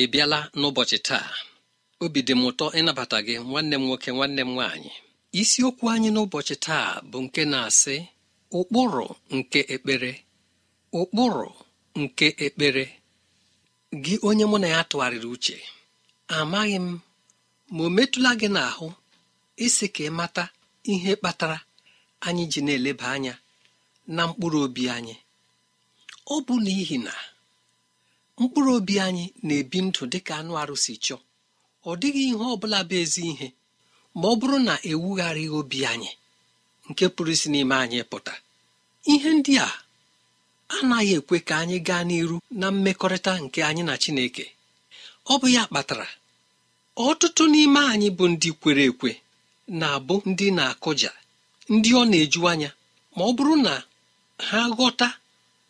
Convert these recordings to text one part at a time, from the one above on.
ị bịala n'ụbọchị taa obi dị m ụtọ ịnabata gị nwanne m nwoke nwanne m nwaanyị isiokwu anyị n'ụbọchị taa bụ nke na-asị ụkpụrụ nke ekpere ụkpụrụ nke ekpere gị onye mụ na ya tụgharịrị uche amaghị m ma o metụla gị n'ahụ isi ka ị mata ihe kpatara anyị ji na-eleba anya na mkpụrụ obi anyị ọ bụ n'ihi na mkpụrụ obi anyị na-ebi ndụ dị ka anụ arụsị chọọ ọ dịghị ihe ọ bụla bụ ezi ihe ma ọ bụrụ na ewugharịghị obi anyị nke pụrụ isi n'ime anyị pụta ihe ndị a anaghị ekwe ka anyị gaa n'iru na mmekọrịta nke anyị na Chineke ọ bụ ya kpatara ọtụtụ n'ime anyị bụ ndị kwere ekwe na-abụ ndị na-akụja ndị ọ na-eju anya ma ọ bụrụ na ha ghọta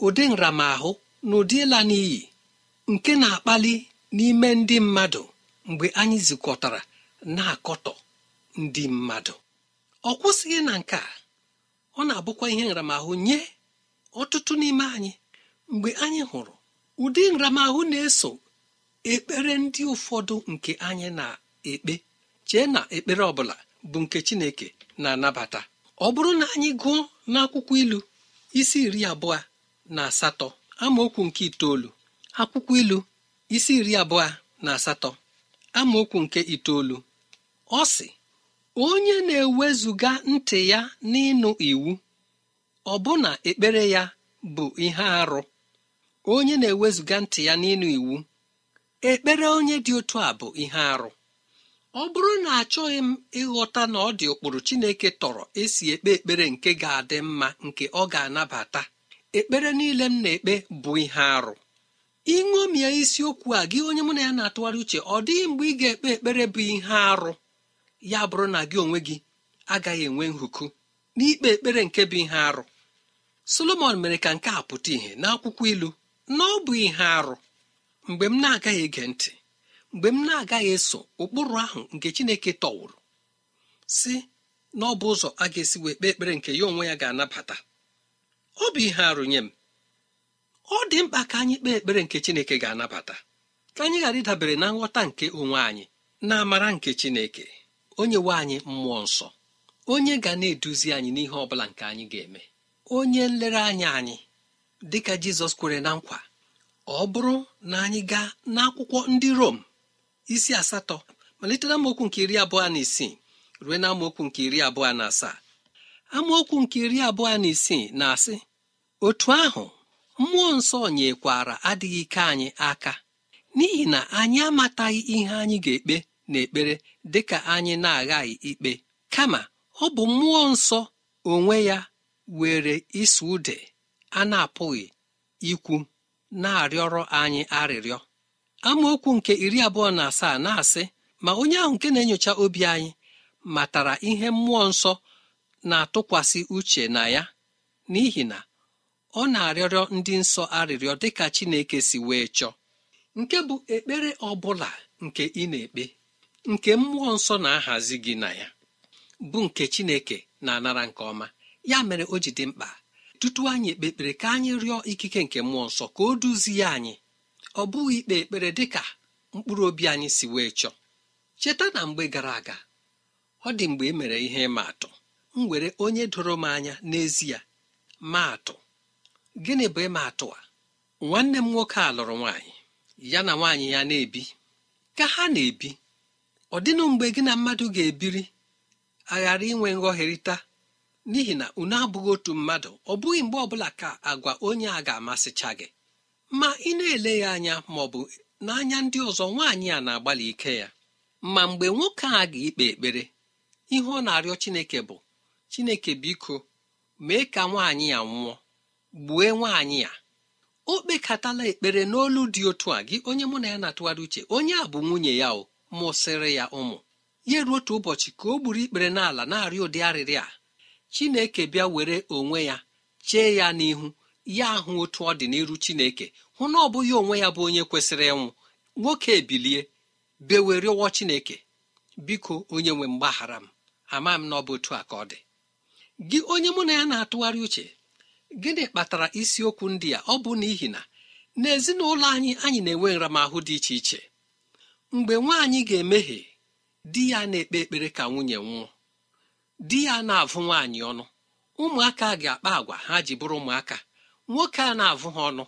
ụdị nramahụ na ụdị ịla n'iyi nke na-akpali n'ime ndị mmadụ mgbe anyị zukọtara na-akọtọ ndị mmadụ ọ kwụsịghị na nke a ọ na-abụkwa ihe nramahụ nye ọtụtụ n'ime anyị mgbe anyị hụrụ ụdị nramahụ na-eso ekpere ndị ụfọdụ nke anyị na-ekpe chee na ekpere ọbụla bụ nke Chineke na-anabata ọ bụrụ na anyị gụọ n'akwụkwọ ilu isi iri abụọ na asatọ amaokwu nke itoolu akwụkwọ ilu isi iri abụọ na asatọ amaokwu nke itoolu ọ sị onye na-ewezuga ntị ya n'ịnụ iwu ọ ọbụna ekpere ya bụ ihe arụ onye na-ewezuga ntị ya n'ịnụ iwu ekpere onye dị otu a bụ ihe arụ ọ bụrụ na achọghị m ịghọta na ọ dị ụkpụrụ Chineke tọrọ esi ekpe ekpere nke ga-adị mma nke ọ ga-anabata ekpere niile m na-ekpe bụ ihe arụ ịṅomie isiokwu a gị onye mụ na ya na-atụgharị uche ọ dịghị mgbe ị ga-ekpe ekpere bụ ihe arụ ya bụrụ na gị onwe gị agaghị enwe nhuku n'ikpe ekpere nke bụ ihe arụ solomon mere ka nke a pụta ìhè n'akwụkwọ ilu na ọ bụ ihe arụ mgbe m na-agaghị ege ntị mgbe m na-agaghị eso ụkpụrụ ahụ nke chineke tọwụrụ si na ọ bụ ụzọ a ga-esi wee kpee ekpere nke ya onwe ya ga-anabata ọ bụ ihe arụ nye m ọ dị mkpa ka anyị kpee ekpere nke Chineke ga-anabata ka anyị ghara ịdabere na nghọta nke onwe anyị na amara nke Chineke onye nwe anyị mmụọ nsọ onye ga na-eduzi anyị n'ihe ọ bụla nke anyị ga-eme onye nlereanya anyị dịka Jizọs kwere na nkwa ọ bụrụ na anyị gaa n'akwụkwọ ndị Rom isi asatọ malite na amaokwu nke iri abụọ na isii ruo na amaokwu nke iri abụọ na asaa amaokwu nke iri abụọ na isii na-asị otu ahụ mmụọ nsọ nyekwara adịghị ike anyị aka n'ihi na anyị amataghị ihe anyị ga-ekpe n'ekpere dịka anyị na-aghaghị ikpe kama ọ bụ mmụọ nsọ onwe ya were isi ude a na-apụghị ikwu na-arịọrọ anyị arịrịọ amaokwu nke iri abụọ na asaa na-asị ma onye ahụ nke na-enyocha obi anyị matara ihe mmụọ nsọ na-atụkwasị uche na ya n'ihi na ọ na-arịọrịọ ndị nsọ arịrịọ dịka Chineke si wee chọọ nke bụ ekpere ọ bụla nke ị na-ekpe nke mmụọ nsọ na-ahazi gị na ya bụ nke Chineke na-anara nke ọma ya mere o ji dị mkpa tutu anyị ekpe ekpere ka anyị rịọ ikike nke mmụọ nsọ ka o duzie anyị ọ bụghị ikpe ekpere dịka mkpụrụ obi anyị si wee chọọ cheta na mgbe gara aga ọ dị mgbe e mere ihe ịma atụ m were onye doro m anya n'ezie maa atụ gịnị bụ ịma atụ a nwanne m nwoke a lụrụ nwaanyị ya na nwaanyị ya na-ebi ka ha na-ebi ọ dịnụ mgbe gị na mmadụ ga-ebiri aghara inwe nghọherịta n'ihi na unu abụghị otu mmadụ ọ bụghị mgbe ọbụla ka agwa onye a ga-amasịcha gị ma ị na-ele ya anya ma ọ bụ n'anya ndị ọzọ nwaanyị a na-agbalị ike ya ma mgbe nwoke a ga-ikpe ekpere ihe ọ na-arịọ Chineke bụ Chineke biko mee ka nwaanyị ya nwụọ gbue nwaanyị ya o kpekatala ekpere n'olu dị otu a gị onye mụ na ya na-atụgharị uche onye a bụ nwunye ya o mụsịrị ya ụmụ ya ruo otu ụbọchị ka o gburu ikpere n'ala na-arịọ ụdị arịrị a chineke bịa were onwe ya chee ya n'ihu ya ahụ otu ọ dị n'iru chineke hụ na ọ bụghị onwe ya bụ onye kwesịrị ịnwụ nwoke ebilie bewe rịọwọ chineke biko onye nwe mgbaghara m ama m na ọ bụ otu a ka ọ dị gị onye mụ na ya na-atụgharị uche gịnị kpatara isiokwu ndị a ọ bụ n'ihi na n'ezinụlọ anyị anyị na-enwe nramahụ dị iche iche mgbe nwaanyị ga-emehie di ya na-ekpe ekpere ka nwunye nwụọ di ya na-avụ nwaanyị ọnụ ụmụaka ga-akpa agwa ha ji bụrụ ụmụaka nwoke a na-avụ ha ọnụ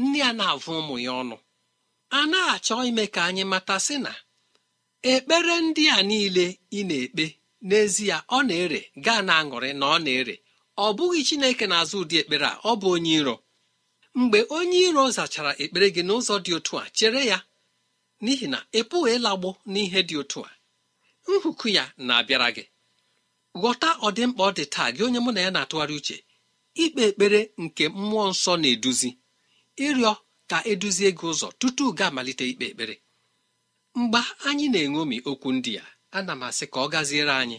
nne ya na-avụ ụmụ ya ọnụ a na-achọ ime ka anyị mata sị na ekpere ndị a niile ị na-ekpe n'ezie ọ na-ere gaa na aṅụrị na ọ na-ere ọ bụghị chineke na-azụ ụdị ekpere a ọ bụ onye iro mgbe onye iro zachara ekpere gị n'ụzọ dị otu a chere ya n'ihi na ị pụghị ịlagbo n'ihe dị otu a nhuku ya na-abịara gị ghọta ọdịmkpa ọ dị taa gị onye mụ na ya na-atụgharị uche ikpe ekpere nke mmụọ nsọ na-eduzi ịrịọ ka eduzie gị ụzọ tutu ga amalite ikpe ekpere mgbe anyị na enwomi okwu ndị ya ana m asị ka ọ gaziere anyị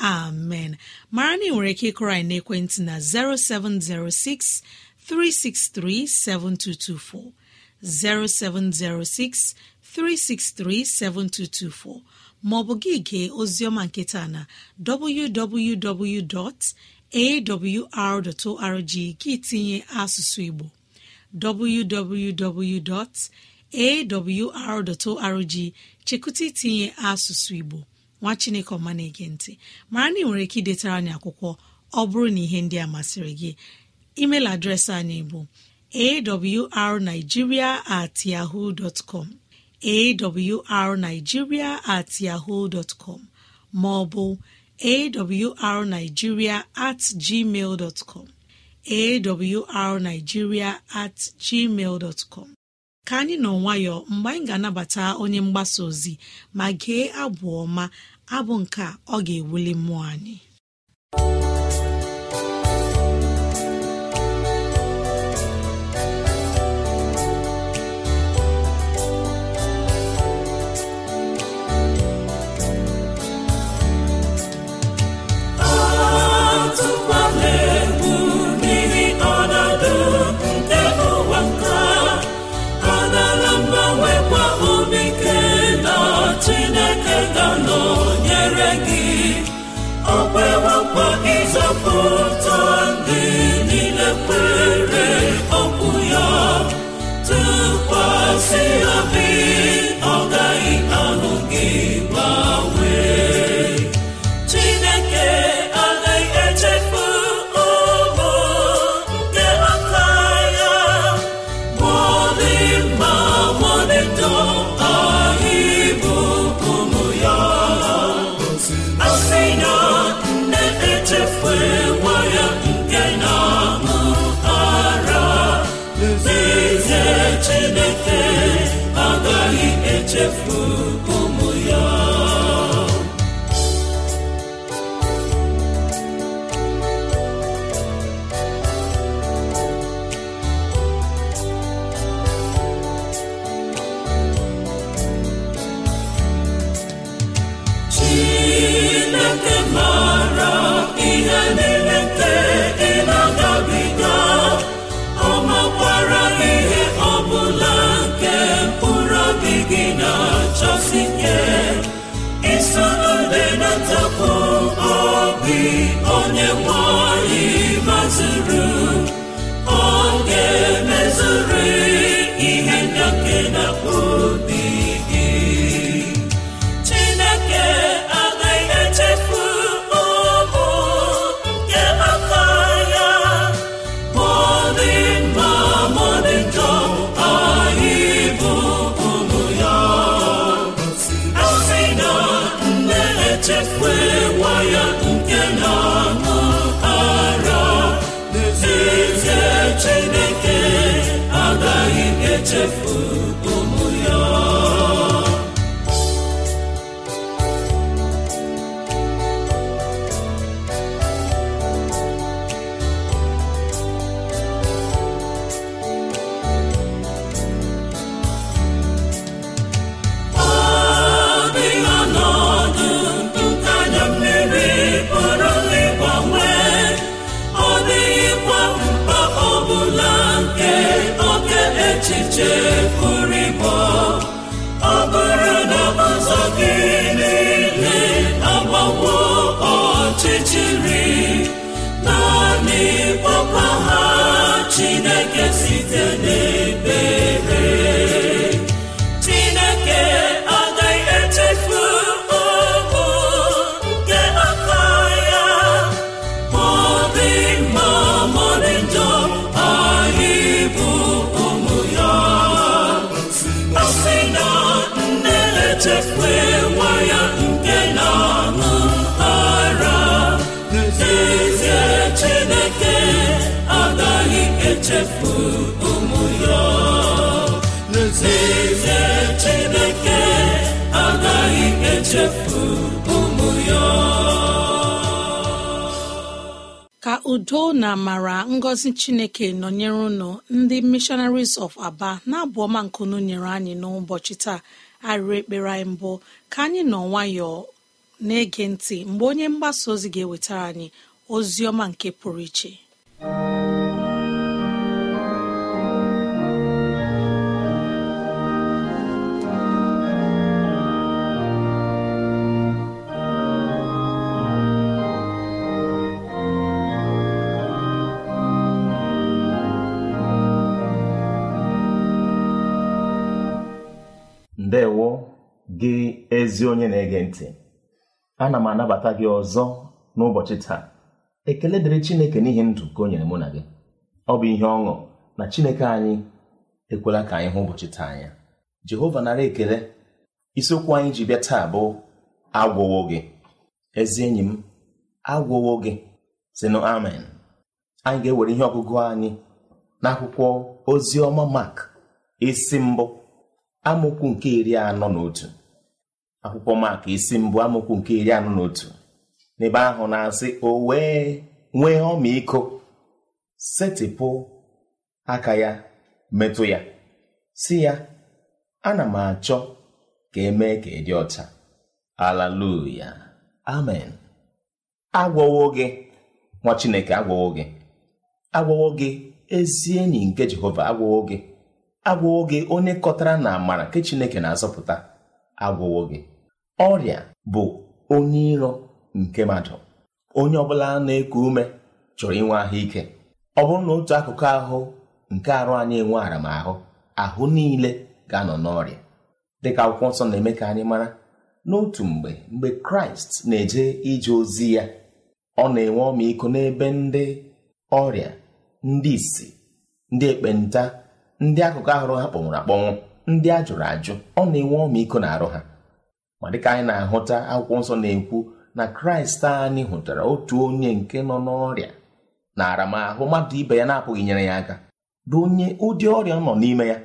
amen mara na nwere ike ịkụrọ anyị ekwentị na 0706 363 7224 0706 363 7224 maọbụ gị gee oziọma nketa na www.awr.org gị tinye asụsụ Igbo www.awr.org chekụta itinye asụsụ Igbo nwa chineke ọma na-ege ntị mara na ị nwere ike idetara anyị akwụkwọ ọ bụrụ na ihe ndị a masịrị gị email adreesị anyị bụ arigiria at yahoo com at yahoo com ma ọ bụ at gmail com at gmail dtcom ka anyị nọ nwayọọ mgbe anyị ga-anabata onye mgbasa ozi ma gee abụ ọma abụ nke ọ ga-ewuli mmụọ anyị e beautiful. ka udo na amara ngọzi chineke nọnyere unu ndị missionaries of aba na-abụ ọma nkunu nyere anyị n'ụbọchị taa arịrị ekpere anyị mbụ ka anyị nọ nwayọọ na-ege ntị mgbe onye mgbasa ozi ga-ewetara anyị ozi ọma nke pụrụ iche ezi onye na-ege ntị ana m anabata gị ọzọ n'ụbọchị taa ekele dịrị Chineke n'ihi ndụ ka o nyere mụ na gị ọ bụ ihe ọṅụ na Chineke anyị ekwela ka anyị hụ ụbọchị taa anya Jehova nara ekele isiokwu anyị ji bịa taa bụ agwụwo gị ezi enyi m agwụwo gị sinụ amen anyị ga-ewere ihe ọgụgụ anyị n'akwụkwọ ozi ọma Mak isi mbụ amaokwu nke iri anọ na otu akwụkwọ maka isi mbụ amụkwu nke iri anọ na otu n'ebe ahụ na-asị o wee nwee ọmịiko setịpụ aka ya metụ ya si ya ana m achọ ka emee ka ịdị ọcha alaluya amen agwọwo gị nwa chineke agwọwo gị agwọwo gị ezi enyi nke jehova agwọwo gị agwọwo gị onye kọtara na amara nke chineke na-azọpụta agwọwo gị ọrịa bụ onye iro nke mmadụ onye ọbụla na-eku ume chọrọ inwe ahụike ọ bụrụ na otu akụkụ ahụ nke arụ anyị enwe aramahụ ahụ niile ga-anọ n'ọrịa dịka akwụkwọ nsọ na-eme ka anyị mara n'otu mgbe mgbe kraịst na-eje ije ozi ya ọ na-enwe ọmịiko n'ebe ndị ọrịa ndị isi ndị ekpenta ndị akụkụ ahụrụ ha kpọnwụrụ akpọnwụ ndị ajụrụ ajụ ọ na-enwe ọmịiko na arụ ha ma dịka anyị na-ahụta akwụkwọ nsọ na-ekwu na kraịst anyị hụtara otu onye nke nọ n'ọrịa na aramahụ mmadụ ibe ya na-apụghị nyere ya aka bụ onye ụdị ọrịa nọ n'ime ya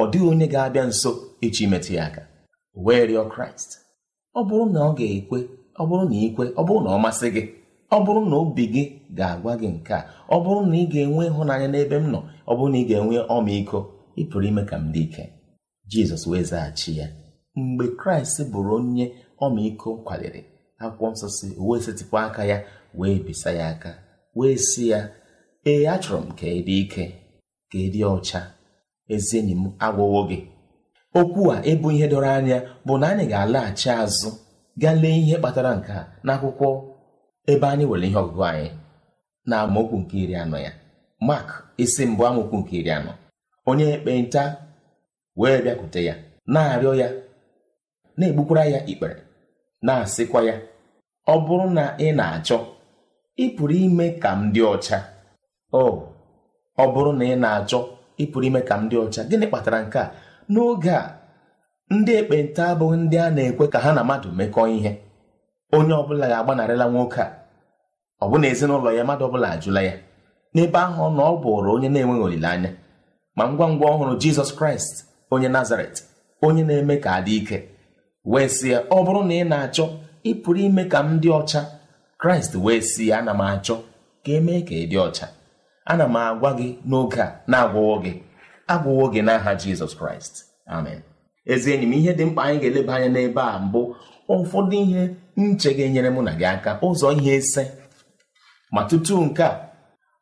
ọ dịghị onye ga-abịa nso echi imetụ ya aka wee rịọ kraịst ọ bụrụ na ọ ga-ekwe ọ bụrụ na ikwe ọ bụrụ na ọ masị gị ọ bụrụ na obi gị ga-agwa gị nke a ọ bụrụ na ị ga-enwe ịhụnanya n'ebe m nọ ọ bụrụ na ị ga-enwe ọmịiko ị pụrụ ime ka m dị ike jizọs wee zaghachi ya mgbe kraịst bụrụ onye ọmịiko kwaliri akwụkwọ nsọ si wee setịpụ aka ya wee bisa ya aka wee si ya ee achọrọ m ka ịdị ike ka ịdị ọcha ezi enyi m agwụwo gị okwu a ịbụ ihe dọrọ anya bụ na anyị ga-alaghachi azụ gaa lee ihe kpatara nke a n'akwụkwọ ebe anyị nwere ihe ọgụgụ anyị na amaokwu nke iri anọ ya mak isi mbụ amaokwu nke iri anọ onye ekpenta wee bịakwute ya na-arịọ ya na-egbukwara ya ikpere na-asịkwa ya ọ bụrụ na ị na-achọ ị pụrụ ime ka m dị ọcha o ọ bụrụ na ị na-achọ ị pụrụ ime ka m dị ọcha gịnị kpatara nke a n'oge a ndị ekpenta abụghị ndị a na-ekwe ka ha na mmadụ mekọọ ihe onye ọbụla ga-agbanarịla nwoke a ọ bụ na ezinụlọ ya mmadụ ọbụla ajụla ya n'ebe ahụ na ọ bụrụ onye na-enweghị olileanya ma ngwa ngwa ọhụrụ Jizọs Kraịst onye Nazaret onye na-eme ka adị ike wee sị ya ọ bụrụ na ị na-achọ ị pụrụ ime ka m dị ọcha kraịst wee si ya ana m achọ ka emee ka ị dị ọcha ana m agwa gị n'oge a na-agwụwo gị agwụwo gị n'aha jizọs kraịst amen ezi enyi m ihe dị mkpa anyị ga-eleba anya n'ebe a mbụ ụfọdụ ihe nche ga-enyere mụ na gị aka ụzọ ihe ise ma tutu nke a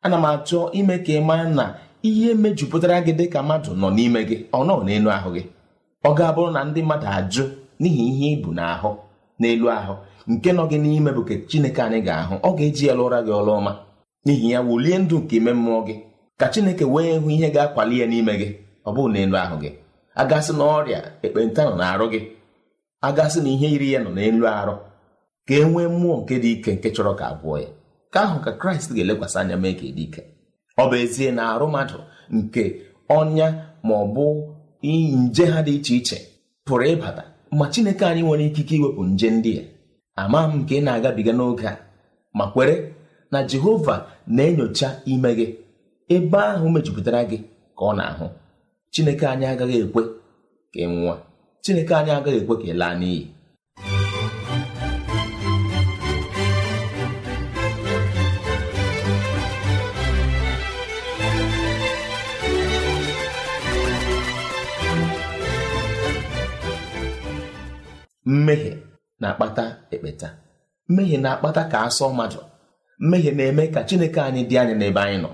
ana m achọ ime ka ị maa na ihe mejupụtara gị dị ka mmadụ nọ n'ime gị ọ nọ n'elu ahụ gị ọ ga-abụrụ na ndị mmadụ ajụ n'ihi ihe ibu n'ahụ n'elu ahụ nke nọ gị n'ime bụ chineke anyị ga-ahụ ọ ga-eji ya ụra gị ọrụ ọma n'ihi ya wulie ndụ nke ime mmụọ gị ka chineke wee hụ ihe ga-akwali ya n'ime gị ọ na n'elu ahụ gị agasị na ọrịa ekpenta nọ na-arụ gị agasị na ihe yiri ya nọ n'elu arụ ka e nwee mmụọ nke dị ike nke chọrọ ka agwụọ ya ka ahụ ka kraịst ga-elekwasị anya mee ka e dị ike ọ bụ ezie na arụ mmadụ nke ọnya ma ọ bụ nje ha dị iche iche pụrụ ịbata ma chineke anyị nwere ikike iwepụ nje ndị a ama m nke ị na-agabiga n'oge a ma kwere na jehova na-enyocha ime gị ebe ahụ mejupụtara gị ka ọ na-ahụ chineke anyị agaghị ekwe ka ị chineke anyị agaghị ekwe ka ị laa n'iyi mmehie na-akpata ekpeta mmehie na-akpata ka asọ mmadụ mmehie na-eme ka chineke anyị dị anyị n'ebe anyị nọ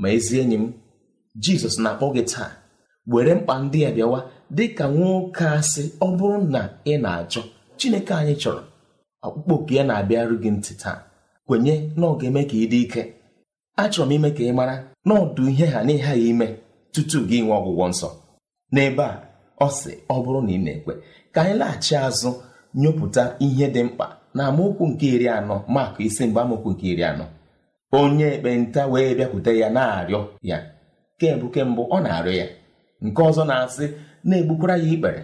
ma ezi enyi m jizọs na-akpọ gị taa were mkpa ndị a bịawa dị ka nwoke asị ọ bụrụ na ị na achọ chineke anyị chọrọ ọkpụkpọ oku ya na-abịarụ gị ntị taa kwenye na ọ ga-eme ka ị dị ike achọrọ m ime ka ị mara na ọdụ ihe ha n'ihe ya ime tutu gị nwee ọgwụgwọ nsọ n'ebe a ọ sị ọ bụrụ na ị na-ekwe ka anyị laghachi azụ nyụpụta ihe dị mkpa na amaokwu nke iri anọ maka isi mgbe amaokwu nke iri anọ onye ekpenta wee bịakwute ya na-arịọ ya kemgbe kemgbe ọ na-arịọ ya nke ọzọ na-asị na-egbukwara ya ikpere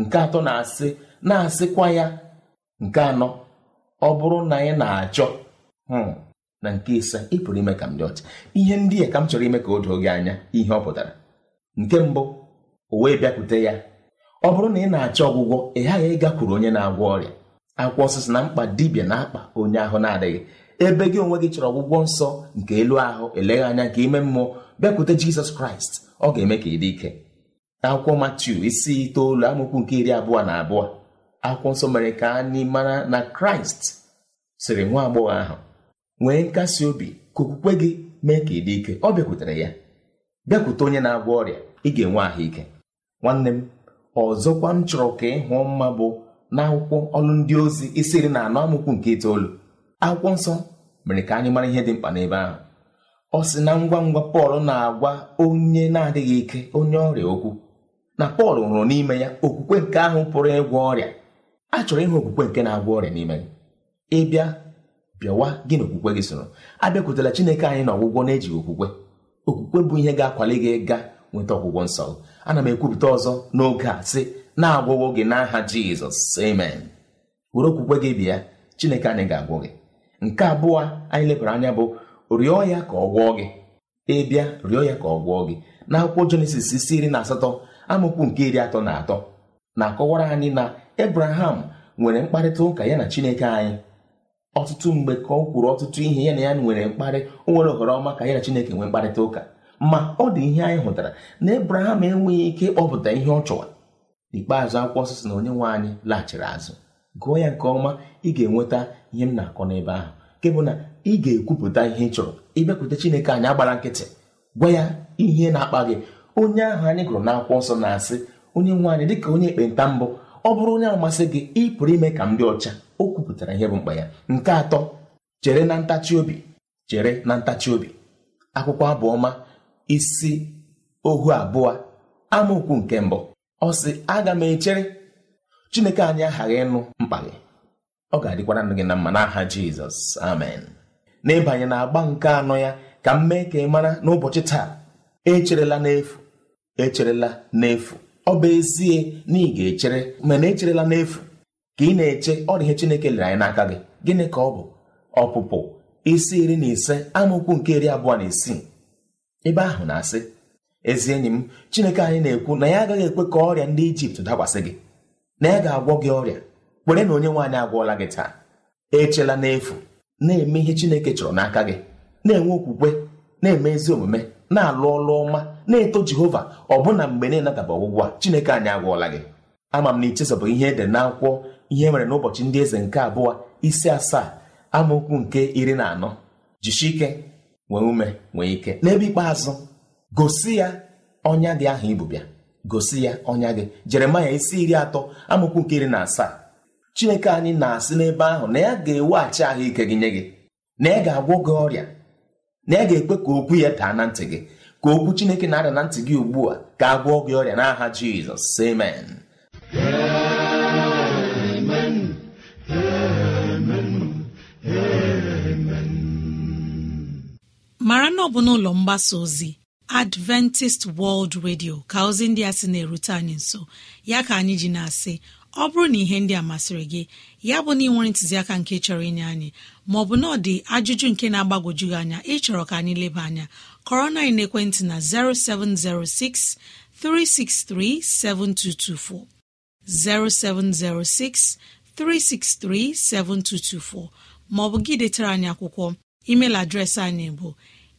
nke atọ na-asị na-asịkwa ya nke anọ ọ bụrụ na anyị na-achọ hmm. na nke ise ị pụrụ ime ka m dị ọcha ihe ndị a ka m chọrọ ime ka o doo gị anya ihe ọ pụtara nke mbụ o wee bịakwute ya ọ bụrụ na ị na-achọ ọgwụgwọ ị ghaghị ịgakwuru onye na-agwọ ọrịa akwụkwọ osisi na mkpa dibia na-akpa onye ahụ na-adịghị ebe gị onwe gị chọrọ ọgwụgwọ nsọ nke elu ahụ eleghị anya nke ime mmụọ bịakwute jizọs kraịst ọ ga-eme ka ị dị ike akwụkwọ matiu isi itoolu amụkwu nke iri abụọ na abụọ akwụkwọ nsọ mere ka anyị mara na kraịst sịrị nwa agbọghọ ahụ nwee nkasi obi ka okwukwe gị mee ka ị dị ike ọ bịakwutere ya bịakwute onye na-agwọ ọrịa ị ga-enwe ahụike nwanne m ọzọkwa m chọrọ ka ịhụ mma bụ n'akwụkwọ ọlụ ndị ozi isi na anọ amụkwu nke itoolu akwụkwọ nsọ mere ka anyị mara ihe dị mkpa n'ebe ahụ ọ sị na ngwa ngwa pọl na-agwa onye na-adịghị ike onye ọrịa okwu na pọl hụrụ n'ime ya okwukwe nke ahụ pụrụ ịgwọ ọrịa a chọrọ ịhụ okwukwe nke na-agwọ ọrịa n'ime gị ịbịa bịawa gị na okwukwe gị soro abịakwutela chineke anyị na ọgwụgwọ na-ejighị okwukwe okwukwe bụ ihe ga-akwali gị ga nweta ọgwụgwọ nsọ ana m ekwupụta ọzọ n'oge a sị na-agwọwo gị n'aha jizọs amen were okwukwe gị bịa chineke anyị ga-agwọ gị nke abụọ anyị lebara anya bụ rịọ ya ka ọ gwọọ gị ịbịa rịọ ya ka ọ gwọọ gị n'akwụkwọ jenesis isi iri na asatọ amụkwu nke iri atọ na atọ na-akọwara anyị na ebraham nwere mkparịta ụka ya na chineke anyị ọtụtụ mgbe ka ọ kwuru ọtụtụ ihe ya na ya nwere mkparị o nwere ohere ọma ka ya na chineke nwee mkparịta ụka ma ọ dị ihe anyị hụtara na ebraham enweghị ike ịkpọpụta ihe ọ chọwa n'ikpeazụ akwụkwọ sisi na onye nwe anyị laghachiri azụ gụọ ya nke ọma ị ga-enweta ihe m na-akọ n'ebe ahụ nke bụ na ị ga-ekwupụta ihe ị chọrọ ịbịakwute chineke anyị agbara nkịtị gwa ya ihe na-akpa gị onye ahụ anyị gụrụ n'akwụkwọ ọsọ na-asị onye nwe anyị dịka onye ekpenta mbụ ọ bụrụ onye amasị gị ị pụrụ ime ka m dị ọcha o kwupụtara ihe bụ mkpa ya nke atọ chere na ntachi obi chere na ntachi obi akwụkwọ abụọma isi ohu abụọ amaokwu nke mbụ ọ sị aga m echere chineke anyị aghaghị ịnụ mkpa gị ọ ga-adịkwara nụ gị na mma n'aha jizọs amen n'ịbanye na agba nke anọ ya ka m mee ka ị mara n'ụbọchị taa echerela n'efu echerela n'efu ọ bụ ezie na ị ga-echere mana echerela n'efu ka ị na-eche ọ dị ihe chineke lere anyị n'aka gị gịnị ka ọ bụ ọpụpụ isi iri na ise amaokwu nke iri abụọ na isii ebe ahụ na-asị ezi enyi m chineke anyị na-ekwu na ya agaghị ekwe ka ọrịa ndị ijipt dakwasị gị na ya ga-agwọ gị ọrịa kwere na onye nwaanyị agwọọla gị taa echela n'efu na-eme ihe chineke chọrọ n'aka gị na-enwe okwukwe na-eme ezi omume na-alụ ọlụ ọma na-eto jehova ọbụna mgbe na-enadaba ọgwụgwọ a chineke anyị agwọọla gị ama m na ichezọbụ ihe ede na akwụkwọ ihe nwere e n'ụbọchị ndị eze nke abụọ isi asaa amaokwu nke iri na anọ jishi ike nwee ume nwee ike n'ebe ikpeazụ gosi ya ọnya gị ahụ ibụbịa gosi ya ọnya gị jeremaya isi iri atọ amụkwu nke iri na asaa chineke anyị na-asị n'ebe ahụ na ya ga-eweghachi ahụike gị nye gị na ya ga-agwọ gị ọrịa na ya ga-ekwe ka okwu ya daa na ntị gị ka okwu chineke na-ada na ntị gị ugbu a ga-agwọ gị ọrịa n'aha jizọs amen mara ọ bụ n'ụlọ mgbasa ozi adventist world radio ka ozi ndị a sị na-erute anyị nso ya ka anyị ji na-asị ọ bụrụ na ihe ndị a masịrị gị ya bụ na ị nwere ntụziaka nke chọrọ inye anyị maọbụ na ọ dị ajụjụ nke na-agbagwoju gị anya ịchọrọ ka anyị leba anya kọrọ na ekwentị na 0706 363 7224 0706 363 7224 maọbụ gị detara anyị akwụkwọ email adreesị anyị bụ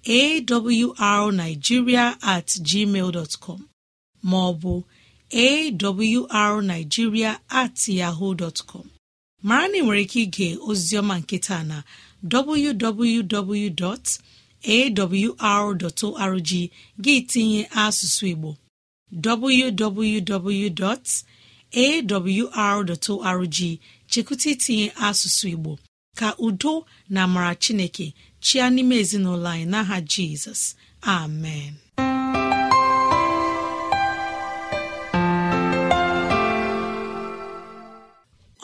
awrnigeria at gmail com maọbụ awrnigeria at yahoo dọtcọm mara na ị nwere ike ige ozioma nketa na www.awr.org gị tinye asụsụ Igbo www.awr.org chekụta itinye asụsụ Igbo ka udo na amara Chineke chịa n'ime ezinụlọ anyị n'aha jizọs amen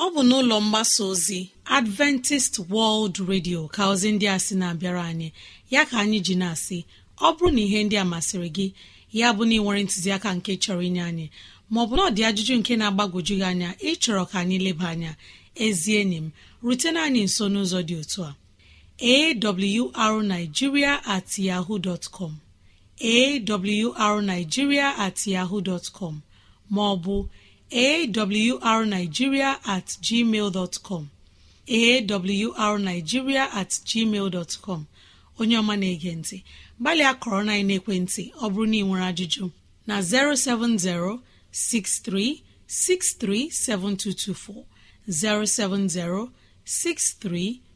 ọ bụ n'ụlọ mgbasa ozi adventist world radio ka ozi ndị a sị na-abịara anyị ya ka anyị ji na-asị ọ bụrụ na ihe ndị a masịrị gị ya bụ na ị ntụziaka nke chọrọ inye anyị maọbụ na ọ dị ajụjụ nke na-agbagwoju gị anya ịchọrọ ka anyị leba anya ezie enyi m rutena anyị nso n'ụzọ dị otu a arigiria at yaho com arigiria at yaho dtcom maọbụ arigiria at gmail dtcom arigiria at gmail dtcom onye ọma na-ege ntị gbalị akọrọ na ekwentị, ọ bụrụ na ị nwere ajụjụ na 070 6363 7224 070 63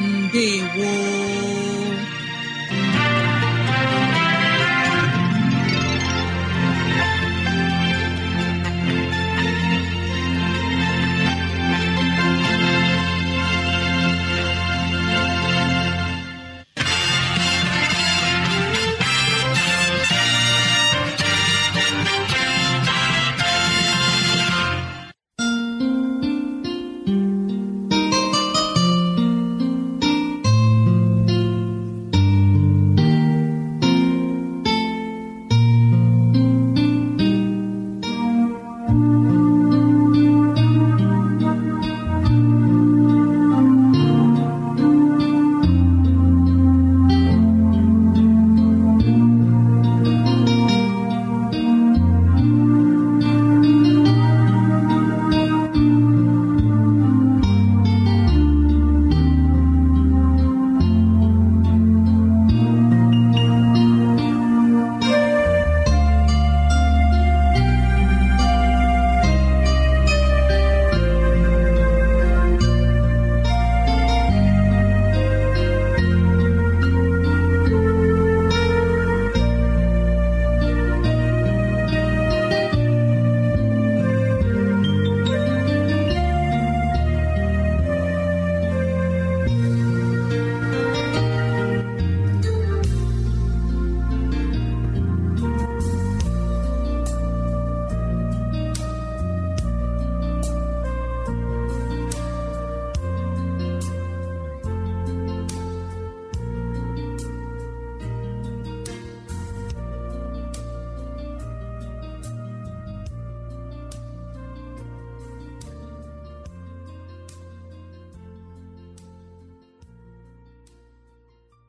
ndewo